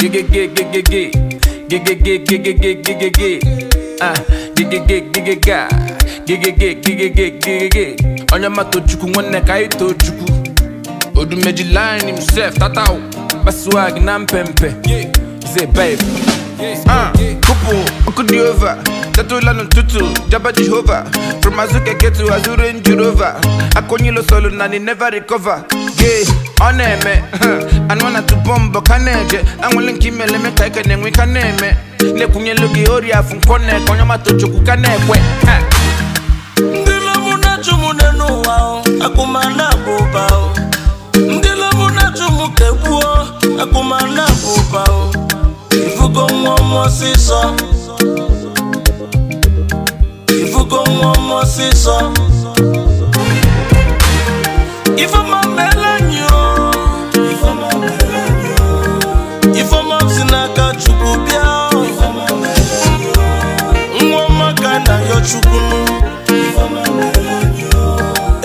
Get get get get get get get get get get get get get get get ah get get get get get ga get get get onye ma nwanne ka anyị na mpempe zé babe ah kopo nkụ dị ova tetụla jaba jehova from azụ keke to azụ range rover akụnyilo solu na ni never recover gay ọ na-eme anụ na tụbọ mbọ ka na-eje anwụle nke me ka ike na-enwe ka na-eme na-ekwunyelu gị ori afụ nkọ na-eke onye mata chukwu ka na-ekwe ndị lọbụ na-achụ m n'ụwa akụmana bụ ụba ndị lọbụ na-achụ m ka egbuo bụ ụba nwa ọsịsọ ifugo nwa m ọsịsọ ifeọma meela anyị ifeọma si n'aka chukwu bịa nwa ọma ka na yọ chukwu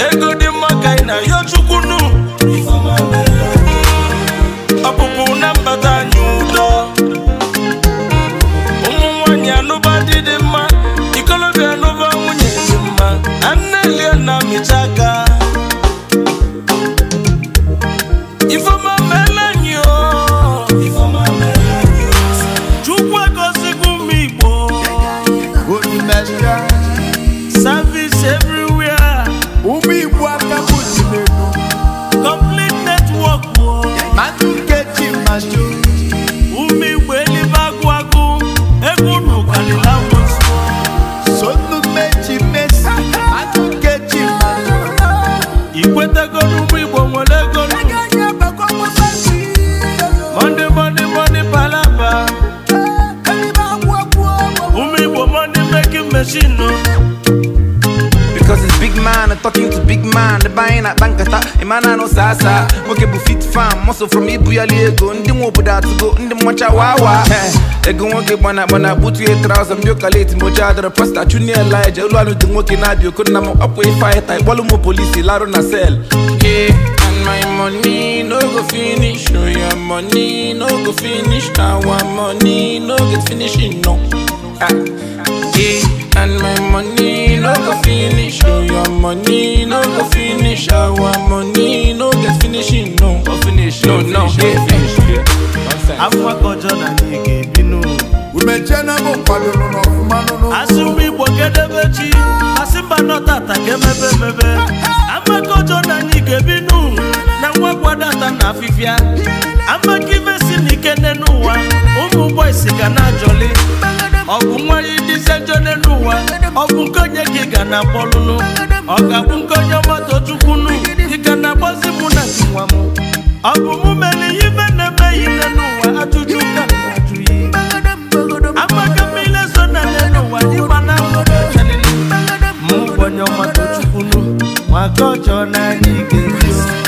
ego dị mma ka ị na yọ chukwu Virgin Because it's big man, I'm talking to big man The buying at Bankata, Imana no sasa Moke bu fit fam, muscle from Ibuya Lego Ndi mwo buda to go, ndi get wawa Ego nwoke bwana bwana butu ye trouser Mbyoka late mbocha adara pasta Junior Elijah, ulu anu di nwoke nadio Kuna mo upway fighter, bolu mo polisi Laro na cell Yeah And my money no go finish. Oh, your money no go finish. Our money no get finishing. No. Ah. no go finish oh your money no go finish our money no get finishing no go finish no no afọ akọjọ na anyị ga-ebinu umechie na bụ kwadoro n'ọfụma nụnụ asị ụmụ igbo kedebe asị mba nọtata ka mebe mebe amakọjọ na anyị ga na nwa na afifia. amaka imesi na n'ụwa ụmụ ụgbọ ga na-ajọli ọ bụ nwere dịse jode n'ụwa ọ bụ nke onye ka ga na akpọlụlụ ọ ga-abụ nke onye ị ga na agbazi mụ na nwa m ọ bụ mụ mere ihe ibe na-emeghị n'ụwa ajụjụ ka ajụghị amaka mmiri so na le n'ụwa mụ maka ọjọọ na ga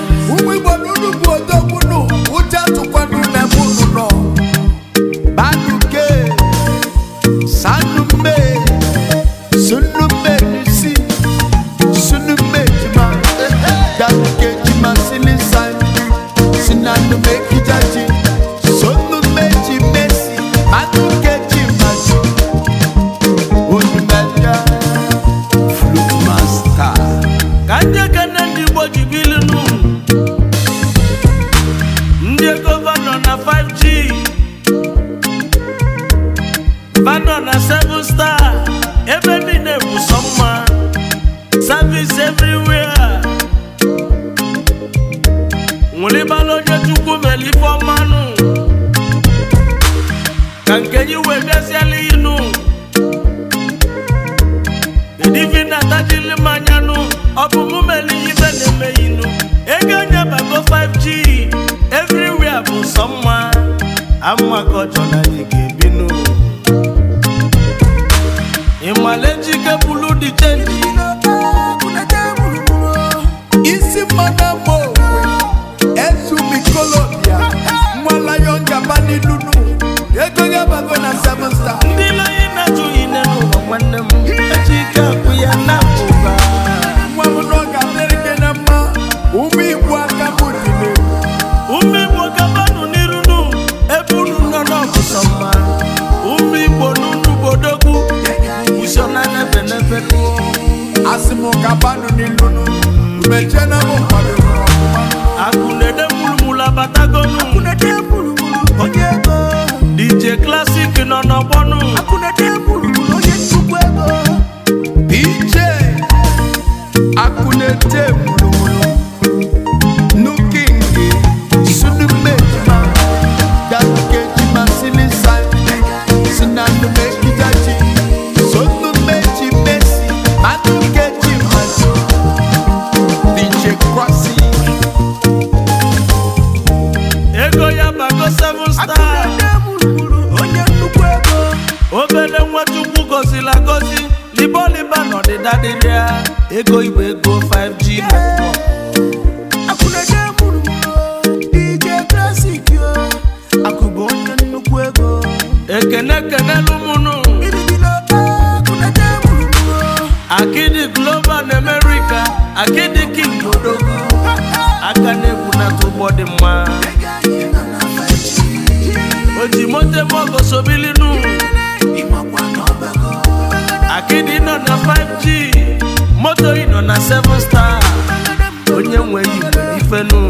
Vano na 5G Vano na 7 star Ebe niile bụ sọ mma Service everywhere Nwụlibala onye chukwu mere ife ọmanụ Ka nke yi wee bịaziela inu Edivina tajili mmanyanụ Ọ bụ mụ mere ihe na ego nyeba go 5g everywhere bụ someone amwa amakọchọ na anyị ga-ebinu ịmale njike bụlu dị mu ni lunu na batagonu DJ Classic nono bonu akunede DJ ego igwe ego 5g mọmọ. akwụnaje kwuru m DJ Classic yo akụbụ onye nnukwu ego ekene global na America Akidi king odogo aka na-egwu n'atụ ụgbọ dị mma o ji moto ebe sobilinu akịdị nọ na 5g going on a seven star. On your way, if I know.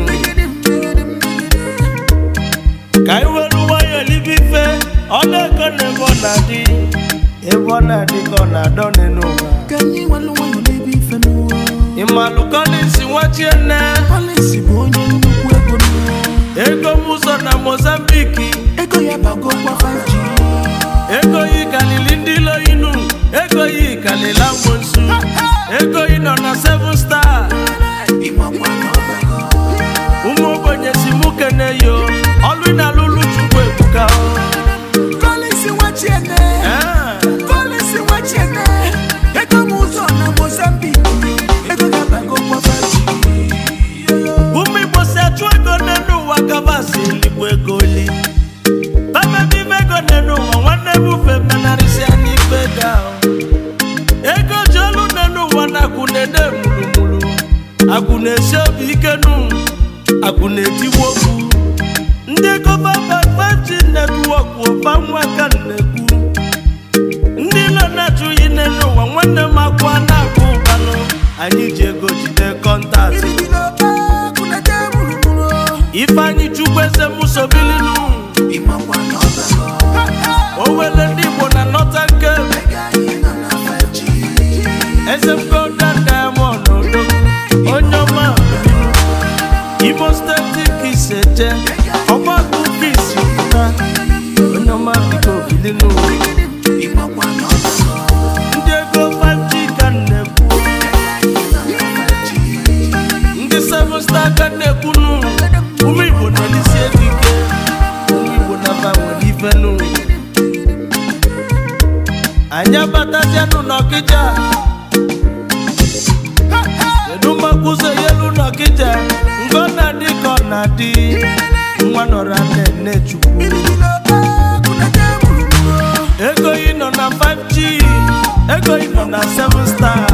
Kai wẹ́lu wáyọ̀ níbí fẹ́, ọlẹ́kọ̀ọ́ ní bọ́lá dí. Ewọ́ náà di kọ́nà dán nínú wa. Kẹ́yìn wọn ló wáyọ̀ níbí fẹ́ ní wa. Ìmàlùkọ́ ní ìsìnwájú ẹ̀nẹ́. Pọ́lísì bò ń yẹ nínú ẹ̀gbọ́n mi. Ego Musa na Mozambique. Ego yẹn bá gbọ́ gbọ́ fàájì. Ego yìí kàlí lindi lọ inú. Ego yìí kàlí láwọn. Você vos dá akwụna na-esi obi ike nụ akụ na okwu ndị kọva babaji netwọkụ nwa ka na-ekwu ndị nọ na-achụghị n'elu ụwa nwanne m akwa na-akụ ụbanụ anyị ji ego jide kọntaktị Ifeanyi chukwu eze musobilinu o ndị igbo na nọta nke eze jẹ ọgbọ́n tó fi ìsìnkúta onye ọma biko bili n'ụwa ndị ego panji ka na-ekwu ndị seven star na-ekwu n'ụwa ụmụ igbo nọ n'isi ekike ụmụ igbo naba nwere ife n'ụwa anyị abatazianụ n'ọkịja kedu na di nwa nọra nne chukwu ego ị nọ na 5G ego ị nọ na 7 star